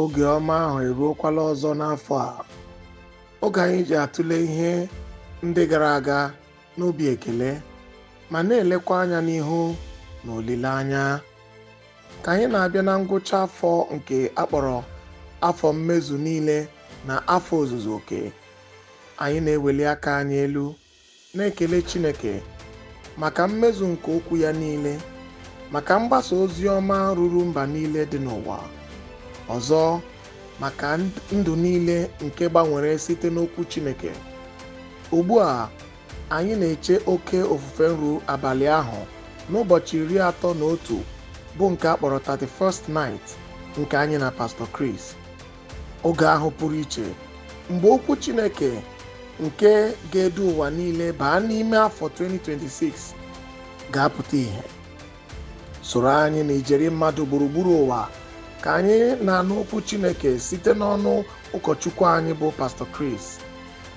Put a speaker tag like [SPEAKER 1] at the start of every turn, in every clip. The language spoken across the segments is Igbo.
[SPEAKER 1] oge ọma ahụ eruokwala ọzọ n'afọ a oge anyị ji atụle ihe ndị gara aga n'obi ekele ma na-elekwa anya n'ihu na olileanya ka anyị na-abịa na ngwụcha afọ nke akpọrọ afọ mmezu niile na afọ ozuzu oke anyị na-eweli aka anyị elu na-ekele Chineke maka mmezu nke okwu ya niile maka mgbasa ozi ọma ruru mba niile dị n'ụwa Ọzọ, maka ndụ niile nke gbanwere site n'Okwu Chineke, ugbu a anyị na-eche oke ofufe nru abalị ahụ n'ụbọchị iri atọ na otu bụ nke a kpọrọ 31st Night nke anyị na Pastọ Chris. Oge ahụ pụrụ iche mgbe Okwu Chineke nke ga-edu ụwa niile baa n'ime afọ 2026 ga-apụta ihe, Soro anyị na ijeri mmadụ gburugburu ụwa ka anyị na-anụ okwu Chineke site n'ọnụ ụkọchukwu anyị bụ Pastor Chris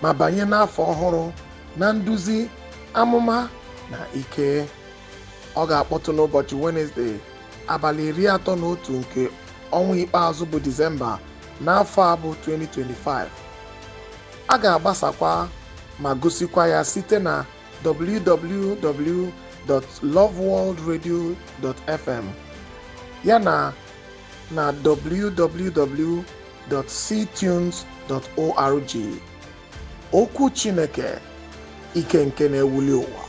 [SPEAKER 1] ma banye n'afọ ọhụrụ na nduzi amụma na ike ọ ga-akpọtụ n'ụbọchị Wenesde abalị iri atọ na otu nke ọnwa ikpeazụ bụ Disemba n'afọ a bụ 2025 a ga-agbasakwa ma gosikwa ya site na www.loveworldradio.fm yana na www.ctunes.org. Okwu Chineke, ike nke na-ewuli ụwa.